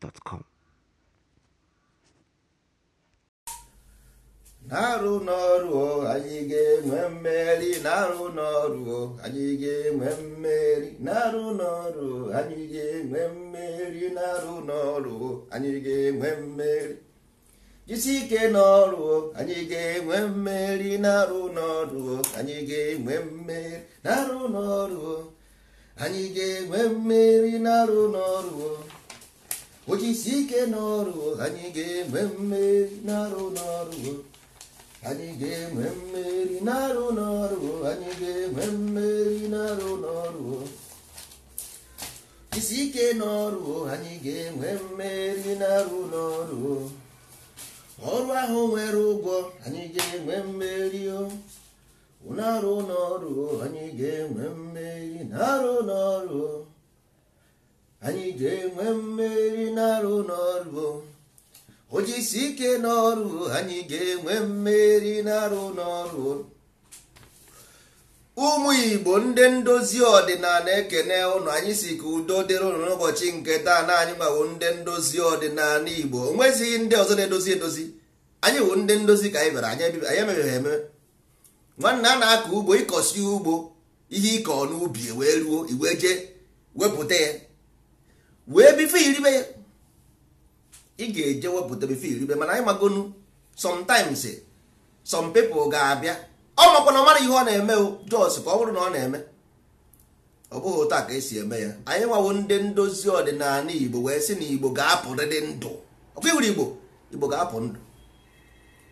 gmail.com. na-arụ n'ọrụ anyị ga-enwe mmeri na-arụ n'ọrụ anyị ga-enwe mmeri na-arụ n'ọrụ anyị ga-enwe mmeri na-arụ n'ọrụ anyị ga-enwe mmeri jisi ike n'ọrụ anyị ga-enwe mmeri na-arụ n'ọrụ anyị ga-enwe mmeri na-arụ n'ọrụ anyị ga-enwe mmeri na-arụ n'ọrụ ojisi ike n'ọrụ anyị ga-enwe mmeri n'arụ n'ọrụ anyị ga-enwe mmeri n'arụ n'ọrụ anyị ga-enwe mmeri n'arụ n'ọrụ isi ike n'ọrụ anyị ga-enwe mmeri n'arụ n'ọrụ ọrụ ahụ nwere ụgwọ anyị ga-enwe mmeri n'arụ n'ọrụ anyị ga-enwe mmeri n'arụ n'ọrụ anyị ga-enwe mmeri n'arụ n'ọrụ ojisi ike n'ọrụ anyị ga-enwe mmeri n'arụ n'ọrụ ụmụ igbo ndị ndozi ọdịnala ekene ụnụ anyị si ka udo dịrị ụnụ n'ụbọchị nke taa na anyị gbawo ndị ndozi ọdịnala igbo onwezighị ndị ọzọ na-edozi edozi anyị wụ ndị ndozi ka anyị bịara anyị emebeghị eme nwanne a na-akọ ugbo ịkọsi ugbo ihe ịkọ n'ubi wee ruo iwe jee wepụta ya wee bife iribe ya ị ga-eje wepụta bife iribe mana anyị magonu sometimes some people ga-abịa ọ makwa na mara ihe ọ na-eme jos ka ọ bụrụ na ọ na-eme ọ bụghị otu ka esi eme ya anyị nwawo ndị ndozi ọdịnala igbo wee sị na igbo ga-apụrịrị ndụ ọkwa iwuru igbo igbo ga-apụ ndụ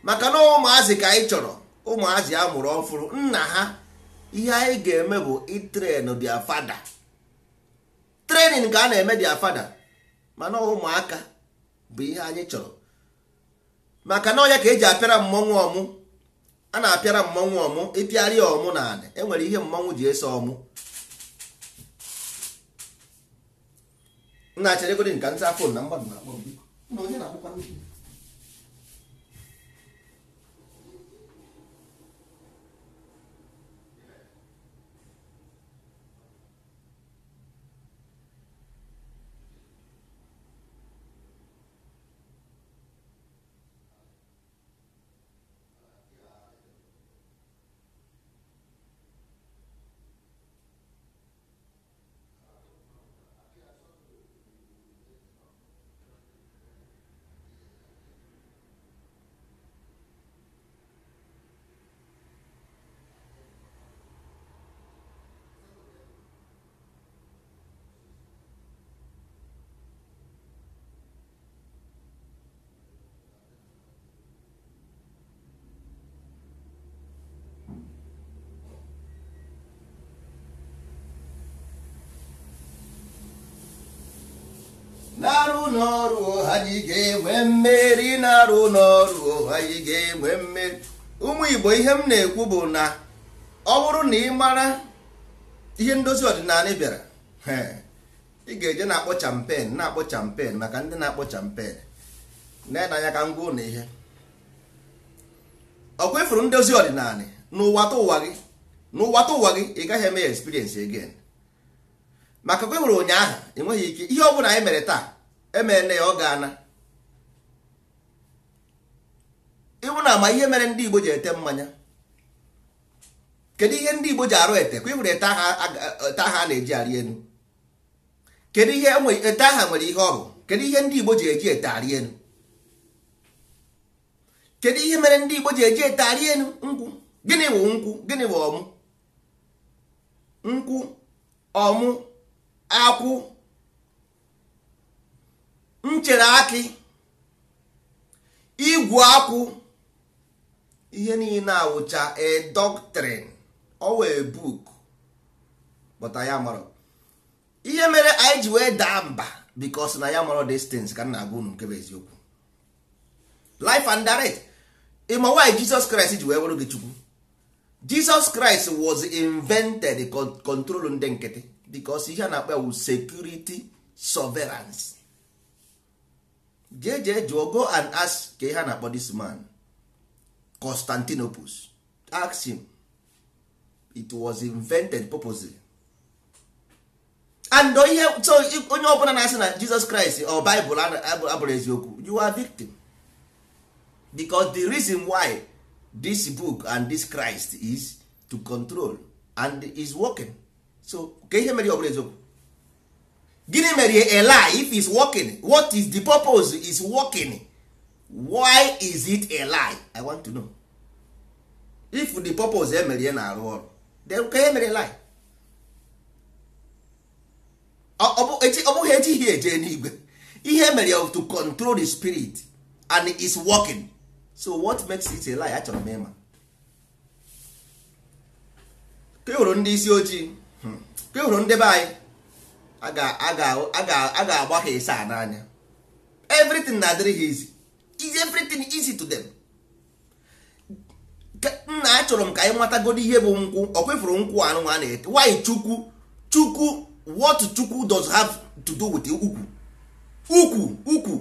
maka na ụmụazị ka anyị chọrọ ụmụazị a mụrụ ọfụrụ nna ha ihe anyị ga-eme bụ itren dia fada trenin ka a na-eme dia fada mana ụmụaka bụ ihe anyị chọrọ maka na ọnya ka eji apịara mmọnwụ ọmụ a na-apịara mmọnwụ ọmụ ya ọmụ na adị enwere ihe mmọnwụ ji eso ọmụ na-achịrịgodị nka nsa afọ na mgbadụ na-akpọ na-arụ n'ọrụ ga-enwe mmeri na-arụ n'ọrụ anyị ga-enwe mmeri ụmụ Igbo ihe m na-ekwu bụ na ọ bụrụ na ị mara ihe ndozi ọdịnala bịara ị ga-eje na-akpọ champen na-akpọ champen maka ndị na-akpọ champen na-enanya ka ngwa ụlọ ihe ọ kwefuru ndozi ọdịnala n'ụwata ụwa gị n'ụwata ụwa gị ị gaghị eme ya experience again maka kwefuru ụnyaahụ enweghị ike ihe ọ bụla anyị mere taa emeela ya ọ ga-ana ịbụ na ama ihe mere ndị Igbo ji ete mmanya kedu ihe ndị Igbo ji arụ ete kwa ịhụrụ ete aha a na-eji arị enu kedu ihe e ete aha nwere ihe ọrụ? kedu ihe ndị Igbo ji eji ete arị enu kedu ihe mere ndị Igbo ji eji ete arị enu nkwụ gịnị bụ nkwụ gịnị bụ ọmụ nkwụ ọmụ akwụ m chere akị igwu akwụ ihe niile awụcha a doctrine ọwa a book but ya ihe mere anyị ji wee daa mba because na ya mọrọ distance ka m na-agwa unu nke bụ eziokwu life and direct ịma why Jesus Christ ji wee wụrụ gị chukwu Jesus Christ was invented control ndị nkịtị because ihe a na-akpa security surveillance jee jụọ go and ask ka ihe a na-akpọ this man Constantinopus ask him it was invented purposely and ihe so onye ọbụla na-asị na Jesus Christ or Bible abụrụ eziokwu you are victim because the reason why this book and this Christ is to control and is working so ka ihe mere ọbụla eziokwu gịnị mere a lie if is working what is the purpose is working why is it a lie i want to know if the purpose emere eh, na-arụ ọrụ then ka emere lie ọ bụghị ejighị eje n'igwe ihe mere to control the spirit and it is working so what makes it a lie achọrọ m ịma ka e ndị isi ojii hmm, ka e hụrụ ndị be anyị a ga-agba ha ise a n'anya everything na-adịrị ha easy is everything easy to them nna achọrọ m ka anyị nwetagodo ihe bụ nkwụ ọ nkwụ anụ a na-ete chukwu chukwu what chukwu does have to do with ukwu ukwu ukwu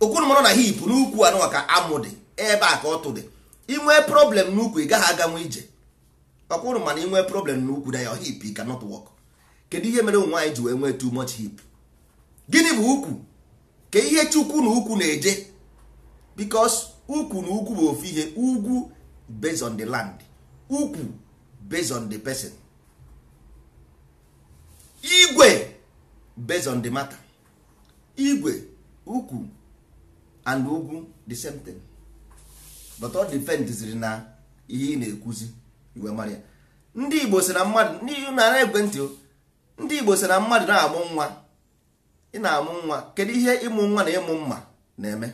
okwuru na hip n'ukwu anụ ka amụ dị ebe a ka ọ dị. dị nwee problem n'ukwu ị gaghị aganwe ije ọkwụrụ mana nwee problem n'ukwu na ya hip cannot work kedu ihe mere ụmụ anyị ji wee nwee too much hip gịnị bụ ukwu ka ihe chukwu na ukwu na-eje because ukwu na ukwu bụ ofu ihe ugwu based on the land ukwu based on the person igwe based on the matter igwe ukwu and ugwu the same thing but all depend ziri na ihe ị na-ekwuzi iwe marịa ndị Igbo si na mmadụ n'ihi na egwe ntị ndị igbo sị na mmadụ na-amụ nwa ị na-amụ nwa kedu ihe ịmụ nwa na ịmụ mma na-eme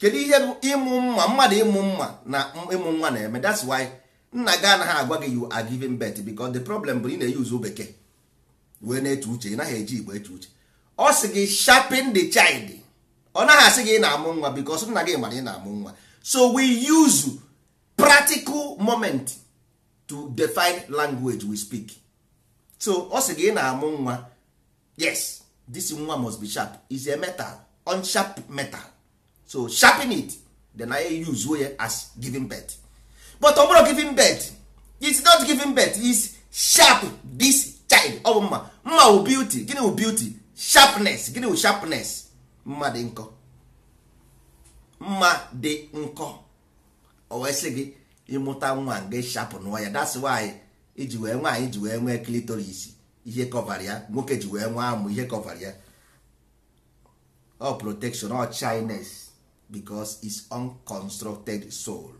kedu ihe ịmụ mma mmadụ ịmụ mma na ịmụ nwa na-eme that's why nna gị anaghị agwa gị you are bet birth because the problem bụ ị na-eyuzu bekee wee na-eche uche ị naghị eji igbo eche uche ọ sị gị sharpen the child ọ naghị asị gị ị na-amụ nwa because nna gị mara ị na-amụ nwa so we use practical moment to define language we speak. so ọ sị gị na-amụ nwa yes this nwa must be sharp is a metal unsharp metal so sharpen it then I use as giving birth but ọ bụrụ giving birth it's not giving birth it's sharp this child ọ bụ mma mma wụ beauty gịnị wụ beauty sharpness gịnị wụ sharpness mma dị nkọ mma dị nkọ o wee sị gị ịmụta nwa gị sharp nwa ya that's why iji wee anyị ji wee nwee klitoris ihe kọvara ya nwoke ji wee nwee amụ ihe kọvara ya ọ protection ọ chines because is unconstructed soul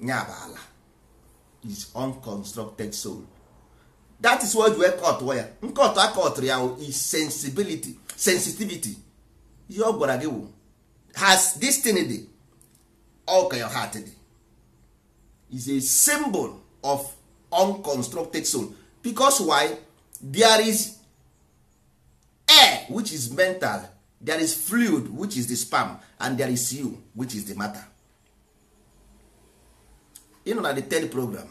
nya bụ ala is unconstructed soul that is what wee kọtụọ ya nkọtụ akọtụrụ ya is sensibility sensitivity ihe ọ gwara gị wụ has destiny dị all your heart dị is a symbol of unconstructed soul because why there is air which is mental there is fluid which is the sperm and there is you which is the matter you know na the third program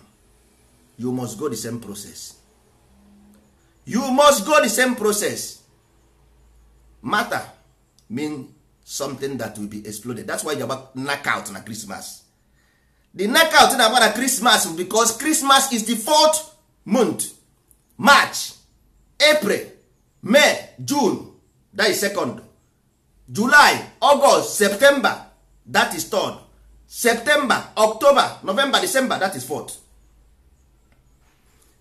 you must go the same process you must go the same process matter mean something that will be exploded that's why you about knockout na christmas the knockout na agbara Christmas because Christmas is the fourth month March April May June that is second July August September that is third September October November December that is fourth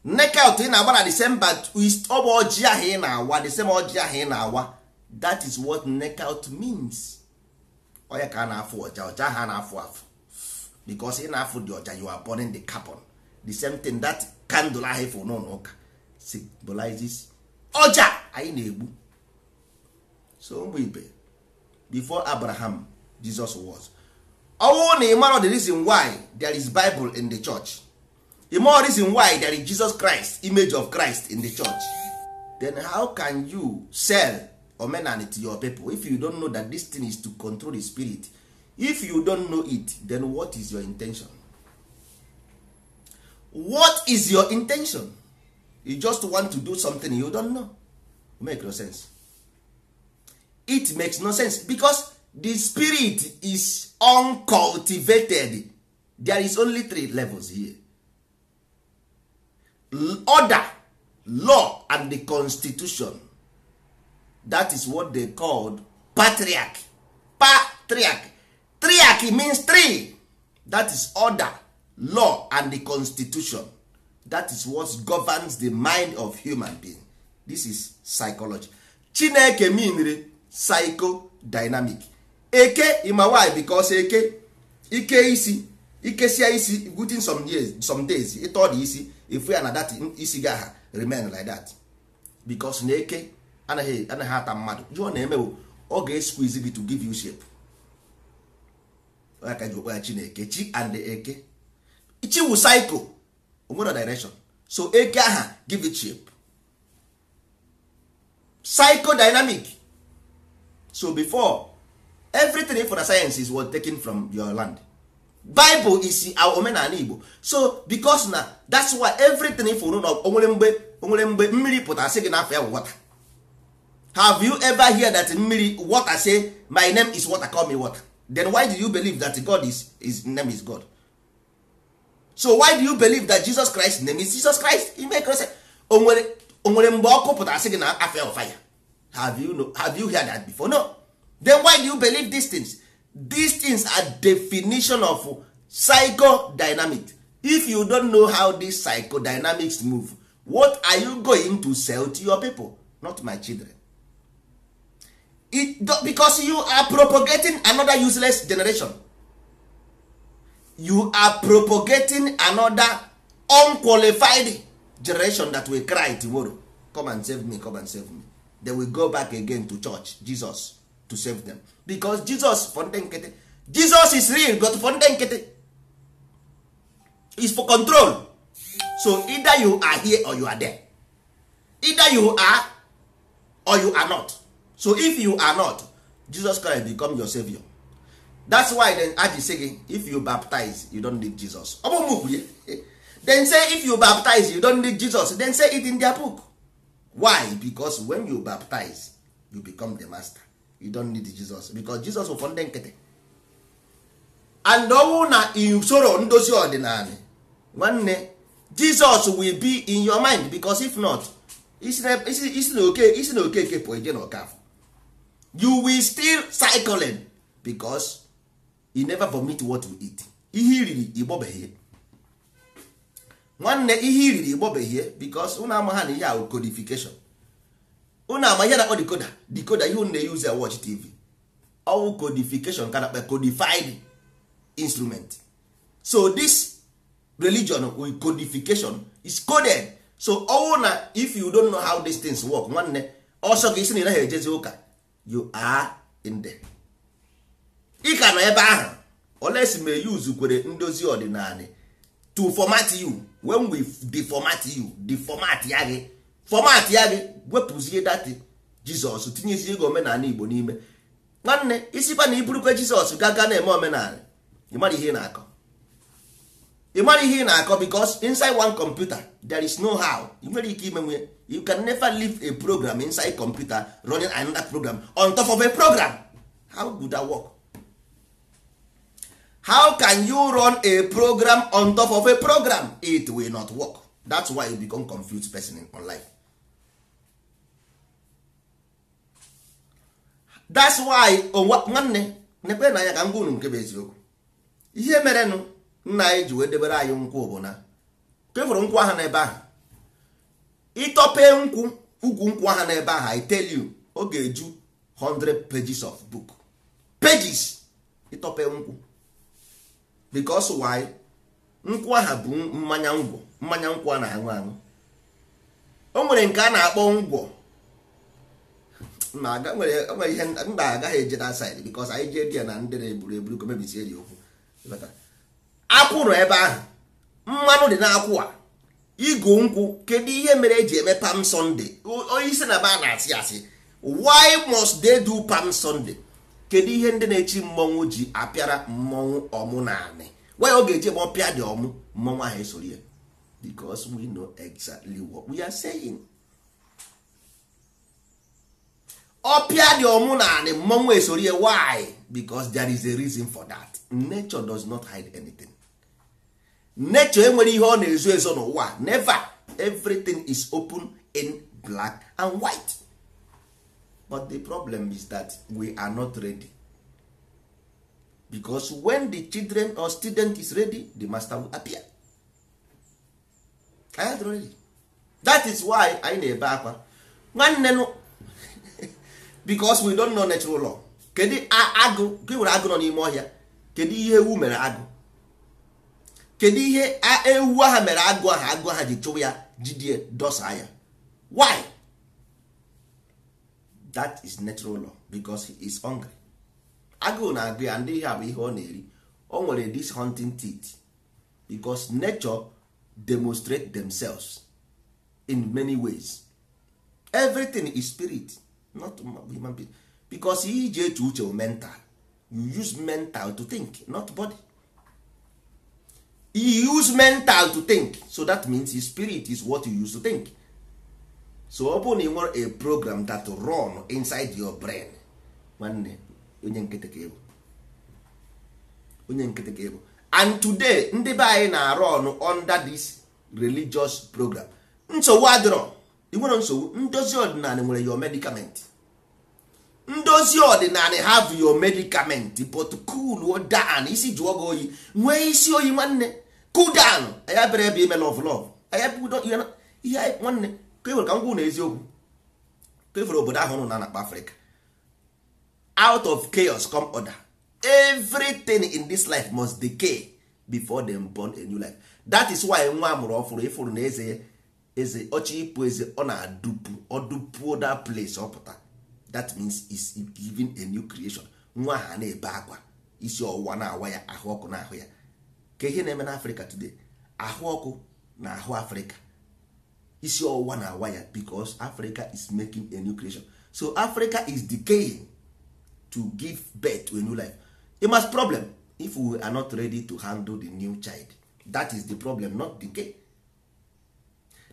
knockout ị na-agbara December ọ bụ ojii ahụ ị na-awa December ojii ahụ ị na-awa that is what knockout means ọ ya ka a na-afụ ọja ọja ha na-afụ afụ because ị na-afụ dị oja you are burning the carbon the same thing that candle ahụ ịfụ n'ụlọ ụka symbolizes ọja anyị na-egbu so ụmụ ibe before abraham jesus was ọnwụ na ịmara the reason why there is bible in the church ịmara reason why there is jesus christ image of christ in the church then how can you sell omenani to your people if you don't know that this thing is to control the spirit if you don't know it then what is your intention what is your intention you just want to do something you don't know make no sense it makes no sense because the spirit is uncultivated there is only three levels here order law and the constitution that is what they called patriarch patriarch triarchy means three that is order law and the constitution that is what governs the mind of human being this is psychology chineke meanre psychodynamic eke ima why because eke ike isi ikesia isi within some years some days ịtọ dị isi efu ya na dat isi ga ha remain like that because na eke anaghị anaghị ata mmadụ jụọ na-emewo ọ ga-esquiz gị to give you shape aka ji okpe ya chineke chi and eke chi wu cycle onwere direction so eke aha give it shape psychodynamic so before everything for the science is what taken from your land bible is our omenala igbo so because na that's why everything for na onwere mgbe onwere mgbe mmiri pụtara sị gị n'afọ ya water have you ever hear that mmiri water say my name is water call me water then why do you believe that god is his name is god so why do you believe that jesus christ name is jesus christ ime krist onwere onwere mgbe ọkụ pụtara sị gị na afia of fire have you have you heard that before no then why do you believe these things these things are definition of psychodynamic if you don't know how these psychodynamics move what are you going to sell to your people not my children It, because you are propagating another useless generation you are propagating another unqualified generation that will cry tomorrow come and save me come and save me they will go back again to church jesus to save them because jesus for jesus is real but for is for control so either you are here or you are there either you are or you are not so if you are not jesus christ become your savior that's why then aji say gị if you baptize you don't need jesus ọ bụ mụ then say if you baptize you don't need jesus then say it in their book why because when you baptize you become the master you don't need jesus because jesus bụ ndị nkịtị and ọnwụ na usoro ndozi ọdịnala nwanne jesus will be in your mind because if not isi na oke isi na okeke pụọ eje na you will still cycling because you never vomit what you eat ihe iriri igbobeghie nwanne ihe iriri igbobeghie because ụnụ ama ha na ihe ahụ codification ụnụ ama ihe na-akpọ decoder decoder ihe ụnụ na-eyuzi a watch tv ọwụ codification ka na-akpa codified instrument so this religion with codification is coded so ọwụ na if you don't know how these things work nwanne ọsọ gị isi na ị naghị ejezi ụka you are in there ị ka nọ ebe ahụ si ma eyi uzukwere ndozi ọdịnala to format you when we deformat you deformat ya gị format ya gị wepụzie dati jizọs tinyezie gị omenala igbo n'ime nwanne isikwa na iburukwa jizọs gaga na-eme omenala ịmara ihe ị na-akọ ịmara ihe ị na-akọ because inside one computer there is no how ị nwere ike ime you can never leave a program inside computer running another program on top of a program how would that work how can you run a program on top of a program it will not work that's why you become confused person in online that's why oh, nwanne nekwe na anya ka ngwa unu nke bụ eziokwu ihe merenụ nna anyị ji wee debere anyị nkwụ bụ na kefụrụ nkwụ ahụ n'ebe ahụ ịtọpee nkwụ ukwu nkwụ aha n'ebe ahụ I tell ọ ga-eju 100 pages of book pages ịtọpee nkwụ because why nkwụ aha bụ mmanya ngwọ mmanya nkwụ a na-aṅụ aṅụ o nwere nke a na-akpọ ngwọ ma nwere ihe mba agaghị eje na side because anyị jee dia na ndị na-eburu eburu ka mebisie ji okwu akwụ nọ ebe ahụ mmanụ dị n'akwụ a ịgụ nkwụ kedu ihe mere eji eme pam sunday onye isi na ba na-asị asị why must they do pam sunday kedu ihe ndị na-echi mmọnwụ ji apịara mmọnwụ ọmụ na anị why ọ ga-eji ebe pịa dị ọmụ mmọnwụ ahụ esoro ya because we know exactly what we are saying ọpịa dị ọmụ na anị mmọnwụ esoro ya why because there is a reason for that nature does not hide anything nature enwere ihe ọ na-ezo ezo n'ụwa never everything is open in black and white but the problem is that we are not ready because when the children or student is ready the master will appear I had ready that is why anyị na-ebe akwa nwanne because we don't know natural law kedu agụ gị nwere agụ nọ n'ime ọhịa kedu ihe ewu mere agụ kedu ihe ewu aha mere agụ aha agụ aha ji chụwa ya jidie dosa ya why that is natural law because he is hungry agụụ na-agụ ya ndị ihe bụ ihe ọ na-eri o nwere this hunting teeth because nature demonstrate themselves in many ways everything is spirit not human being because ihe iji eche uche mental you use mental to think not body you use mental to think so that means his spirit is what you use to think so ọ bụrụ na ị nwere a program that run inside your brain nwanne onye nkịtị ka onye nkịtị ka and today ndị be anyị na-arụ ọnụ under this religious program nsogbu adịrọ ị nwere nsogbu ndozi ọdịnala nwere your medicament ndozi ọdịnala have your medicament but cool down isi jụọ gị oyi nwee isi oyi nwanne cool down anya bere ebe ime love love anya ihe nwanne ka ka m na eziokwu obodo ahụ nụ na nakpa afrịka out of chaos come order everything in this life must decay before them born a new life that is why nwa amụrụ ọfụrụ ịfụrụ na eze eze ọchị ịpụ eze ọ na-adụpu ọdụpuo that place ọpụta that means is giving a new creation nwa ha na-ebe akwa isi ọwụwa na-awa ya ahụ ọkụ na ahụ ya ka ihe na-eme n'afrịka today ahụ ọkụ na ahụ afrịka isi ọwụwa na awa ya africa is making a new creation so africa is decaying to give birth to a new life it must problem if we are not ready to handle the new child that is the problem not decay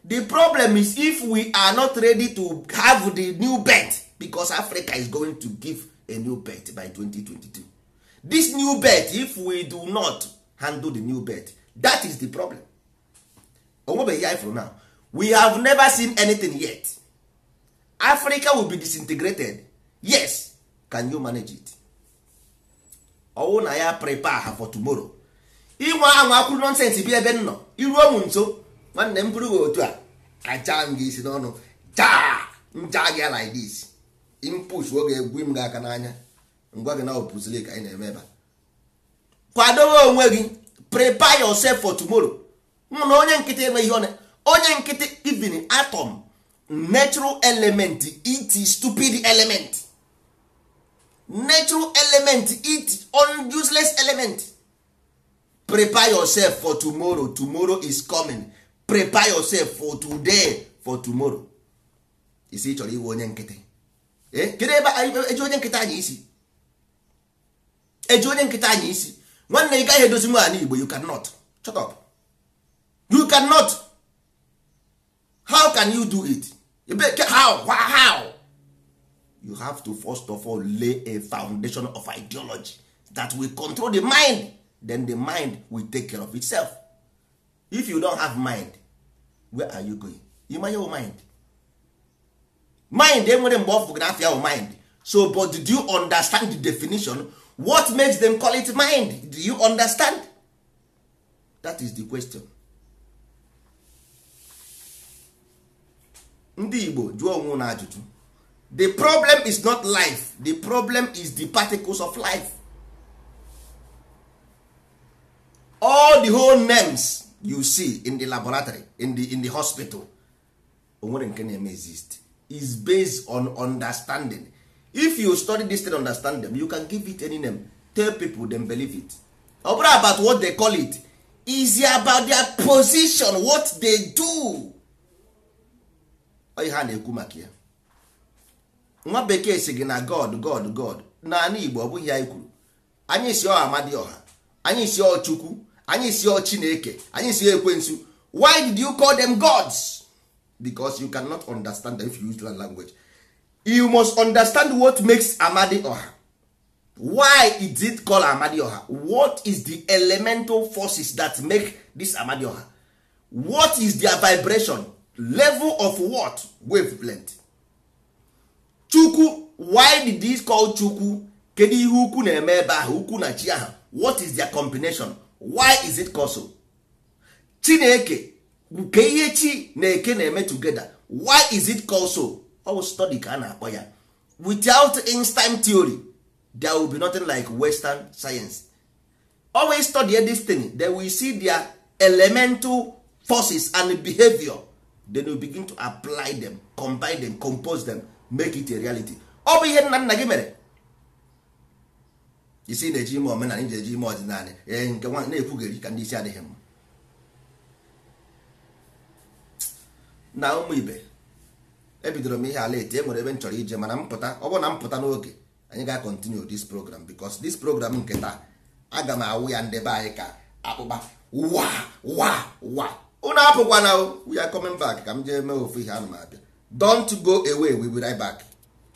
the problem is if we are not ready to have the new birth because africa is going to give a new birth by 2022 this new birth if we do not handle the new birth that is the problem onwebeghị ya for now we have never seen anything yet africa will be disintegrated yes can you manage it ọwụ na ya prepare ha for tomorrow inwe anwa akwụrụ nonsense bi ebe nnọ iruo m nso nwanne m bụrụ otu a aja m gị isi n'ọnụ jaa nja gị like idis impus oge egwu m gị aka n'anya ngwa gị na ka anyị na-eme ebe a kwadowe onwe gị prepare yourself for tomorrow na onye nkịtị enweghị ọnụ onye nkịtị even atom natural element it stupid element natural element it useless element prepare yourself for tomorrow tomorrow is coming prepare yourself for today for tomorrow isi chọrọ iwe onye nkịtị eh, kedu ebe eji onye nkịta anyị isi onye anyị isi nwanne ị gaghị edozi nwaanyị igbo you cannot shut up you cannot how can you do it how how you have to first of all lay a foundation of ideology that will control the mind then the mind will take care of itself if you don have mind where are you going ịma your mind mind enwere mgbe ọ fụgara afịa mind so but do you understand the definition what makes them call it mind do you understand that is the question ndị igbo jụọ onwe na ajụjụ the problem is not life the problem is the particles of life all the whole names you see in the laboratory in the, in the hospital onwere nke exist is based on understanding if you study this thing understand them you can give it any name tell people them believe it ọ about what they call it is about their position what they do ihe a na-ekwu maka ya nwa bekee si gị na god god god naanị igbo ọ bụghị ya kwuru anyị si ọ amadioha anyị si ọchukwu anyị si ọ anyị si ekwensu why did you call them gods because you cannot understand them if you use that language you must understand what makes amadi oha why is it called amadi oha what is the elemental forces that make this amadi oha what is their vibration level of what wavelength chukwu why did this call chukwu kedu ihe ukwu na-eme ebe ahụ ukwu na chi ahụ what is their combination why is it called so chineke nke ihe chi na eke na-eme together why is it called so ọwụ study ka a na-akpọ ya without time theory there will be nothing like western science always study a thing then we see their elemental forces and behavior then we begin to apply them combine them compose them make it a reality ọ bụ ihe nna nna gị mere isi na-eji ime omenala iji eji ime ọdịnala ee nke nwa na-ekwugheri ka ndị isi adịghị mma na ụmụ ibe ebidoro m ihe ala e enwere ebe m chọrọ ije mana mpụta ọ bụrụ na m n'oge anyị ga-akọntinu dis program because dis program nke taa aga m awụ ya ndebe anyị ka akpụkpa wa waa unu apụkwana we are coming back ka m jee mee ofu ihe anụ m abịa don't go away we will right back